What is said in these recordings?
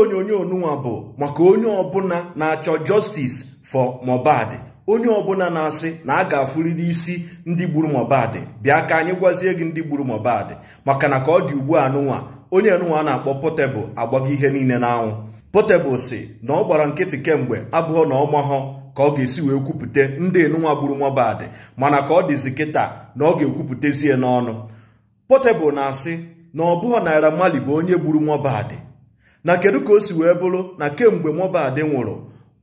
onyonyo nụnwa bụ maka onye ọbụla na-achọ justice for Mohbad onye ọbụla na-asị na a ga-afụrịrị isi ndị gburu Mohbad bịa ka anyị gwazie gị ndị gburu Mohbad maka na ka ọ dị ugbu a nụnwa onye nụnwa na-akpọ potebụl agbago ihe niile n'anwụ Portable si na ọ gbara nkịtị kemgbe abụghọ na ọmahọ ka ọ ga-esi wee kwupụta ndị enunwa gburu Mohbad mana ka ọ dịzi kịta na ọ ga-ekwupụtezie n'ọnụ Portable na-asị na ọ bụghọ Naira Marley bụ onye gburu Mohbad na kedu ka o si wee bụrụ na kemgbe Mohbad nwụrụ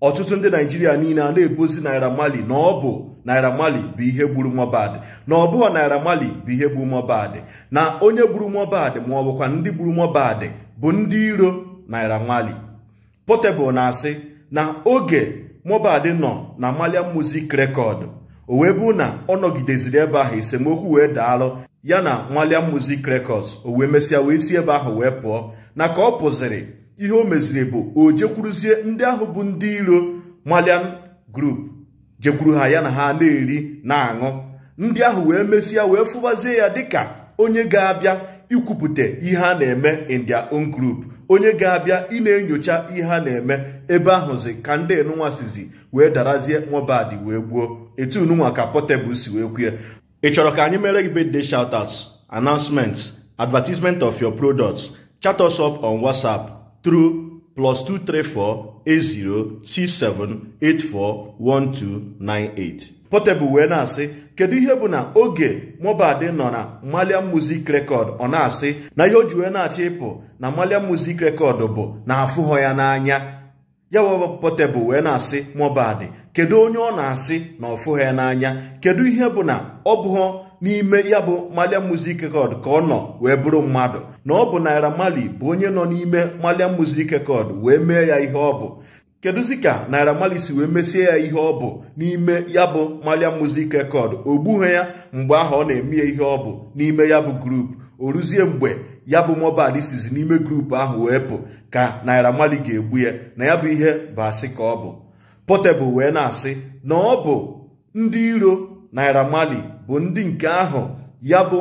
ọtụtụ ndị naijiria niile a na-ebozi naira mali na ọ bụ naira mali bụ ihe gburu Mohbad na ọ bụghị naira mali bụ ihe gburu Mohbad na onye gburu Mohbad ma ọ bụkwa ndị gburu Mohbad bụ ndị iro naira mali Portable na-asị na oge Mohbad nọ na malia music record o wee bụ na ọ nọgideziri ebe ahụ esemokwu wee daalụ ya na nwaliam music records o wee mesịa wee si ebe ahụ wee pụọ na ka ọ pụziri ihe o meziri bụ o jekwuruzie ndị ahụ bụ ndị iro malian group jekwuru ha ya na ha na-eri na-aṅụ ndị ahụ wee mesịa wee fụbazie ya dịka onye ga-abịa ikwupụta ihe a na-eme in their onye ga-abịa ị na-enyocha ihe a na-eme ebe ahụzi ka ndị enunwa sizi wee darazie nwabadị wee gbuo etu nunwa ka Portable si wee kwue ị chọrọ ka birthday shoutouts announcements advertisement of your products chat us up on whatsapp through plus 2348067841298 Portable wee na-asị kedu ihe bụ na oge Mohbad nọ na Malian Music Record ọ na-asị na ihe o ji wee na-achọ ịpụ na Malian Music Record bụ na afụghọ ya n'anya ya potebụl wee na-asị Mohbad kedu onye ọ na-asị na ọfụ ha n'anya kedu ihe bụ na ọ bụghọ n'ime ya bụ Malian Music kod ka ọ nọ wee bụrụ mmadụ na ọ bụ Naira Marley bụ onye nọ n'ime malia Music kod wee mee ya ihe ọ bụ kedụzi ka Naira Marley si wee mesie ya ihe ọ bụ n'ime ya bụ maliam Music Record o gbughị ya mgbe ahụ ọ na-eme ya ihe ọ bụ n'ime ya bụ grupu o ruzie mgbe ya bụ Mohbad sizi n'ime grupu ahụ wee pụ ka Naira mali ga-egbu ya na ya bụ ihe bụ asị ka ọ bụ Portable wee na-asị na ọ bụ ndị iro Naira mali bụ ndị nke ahụ ya bụ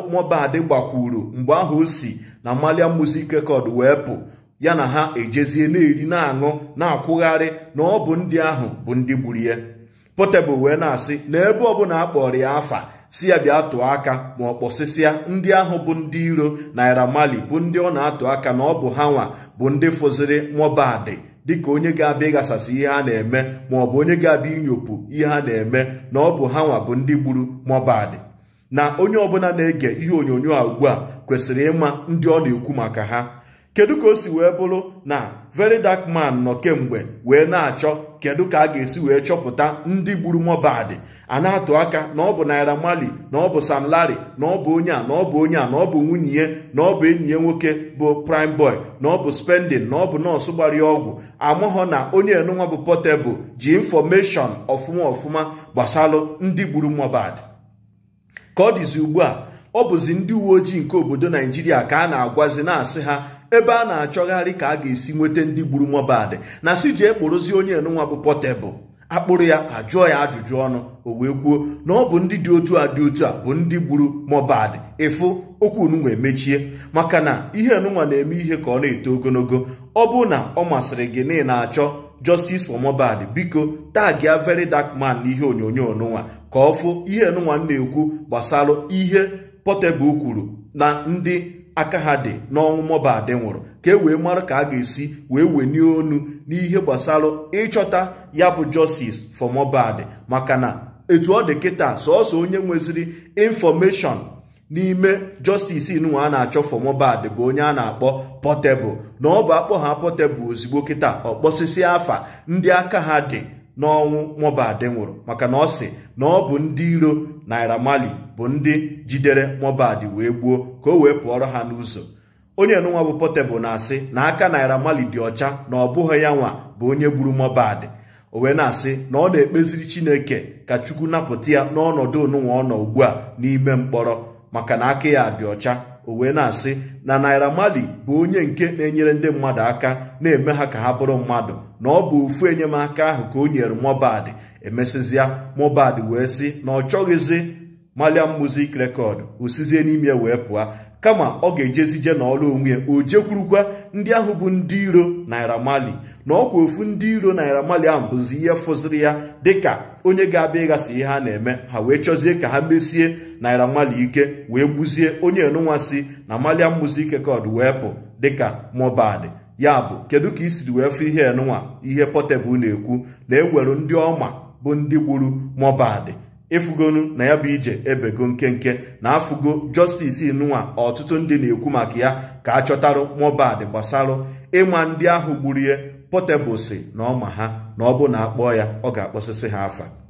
gbakwuru mgbe ahụ o si na Malia Music Record wee pụ ya na ha ejezie na-eri na-aṅụ na-akwụgharị na ọ bụ ndị ahụ bụ ndị gburu ya Portable wee na-asị na ebe ọbụla a ya afa si ya bịa tụọ aka ma ọ kpọsịsịa ndị ahụ bụ ndị iro naira mali bụ ndị ọ na-atụ aka na ọ bụ ha nwa bụ ndị fụziri Mohbad dịka onye ga-abịa ịghasasị ihe a na-eme ma ọ bụ onye ga-abịa inyopụ ihe a na-eme na ọ bụ ha bụ ndị gburu Mohbad na onye ọbụla na-ege ihe onyonyo a ugbu a kwesịrị ịma ndị ọ na-ekwu maka ha kedu ka o si wee bụrụ na very dark man nọ kemgbe wee na-achọ kedu ka a ga-esi wee chọpụta ndị gburu Mohbad a na-atụ aka na ọ bụ Naira mali na ọ bụ Sam Larry na ọ bụ onye a na ọ bụ onye a na ọ bụ nwunye ya na ọ bụ enyi ya nwoke bụ Prime Boy na ọ bụ spending na ọ bụ nọọsụ gbara ọgwụ amụghọ na onye enunwa bụ Portable ji infọmeshọn ọfụma ọfụma gbasalụ ndị gburu Mohbad ka ọ dịzi ugbu a ọ bụzi ndị uwe ojii nke obodo Naijiria ka a na-agwazi na-asị ha ebe a na-achọgharị ka a ga-esi nweta ndị gburu Mohbad na si ji ekporozi onye enunwa bụ pọtebụl akpụrụ ya ajụọ ya ajụjụ ọnụ o wee kwuo na ọ bụ ndị dị otu a dị otu a bụ ndị gburu Mohbad ịfụ okwu onunwa emechie maka na ihe enunwa na-eme ihe ka ọ na-eto ogologo ọ bụ na ọ masịrị gị na ị na-achọ justice for Mohbad biko tagia very dark man ihe onyonyo nụnwa ka ọ fụ ihe enunwa na-ekwu gbasara ihe pọtebụl kwuru na ndị aka ha dị n'ọnwụ Mohbad nwụrụ ka e wee mara ka a ga-esi wee wenie onu n'ihe gbasara ịchọta ya bụ justice for Mohbad maka na etu ọ dị kịta sọọsọ onye nweziri infọmeshọn n'ime justice nwa a na-achọ for Mohbad bụ onye a na-akpọ pọtebụl na ọ bụ akpọ ha Portable ozigbo kịta ọkpọsịsị afa ndị aka ha dị n'ọnwụ Mohbad nwụrụ maka na ọ sị na ọ bụ ndị iro Naira mali bụ ndị jidere Mohbad wee gbuo ka o wee pụọrọ ha n'ụzọ onye nụnwa bụ Portable na-asị na aka Naira mali dị ọcha na ọ bụghị ya nwa bụ onye gburu Mohbad o wee na-asị na ọ na-ekpeziri Chineke ka Chukwu napụta ya n'ọnọdụ onunwa ọ nọ ugbu a n'ime mkpọrọ maka na aka ya dị ọcha o wee na-asị na naira mali bụ onye nke na-enyere ndị mmadụ aka na-eme ha ka ha bụrụ mmadụ na ọ bụ ofu enyemaka ahụ ka o nyere Mohbad emesịzịa Mohbad wee sị na ọ chọghịzị. maliam music rekọd osizie n'ime wee pụọ kama ọ ga-ejezije n'ọrụ onwe ya o jekwurukwa ndị ahụ bụ ndị iro naira mali na ọkwa ofu ndị iro naira mali ahụ bụzi ihe fụziri ya dịka onye ga-abịa ịghasa ihe ha na-eme ha wee chọzie ka ha mesie naira mali ike wee gbuzie onye enunwa si na maliam music rekọd wee pụ dịka mobad ya bụ kedu ka i siri wee fụ ihe enunwa ihe potebụl na-ekwu na e nwere ndị ọma bụ ndị gburu mobad ịfụgonu na ya bụ ije ebego nkenke na afụgo justice inụnwa ọtụtụ ndị na-ekwu maka ya ka a chọtarụ mobad gbasarụ ịma ndị ahụ gburu ihe potebusi na ọma ha na ọ bụ na akpọọ ya ọ ga-akpọsịsị ha afa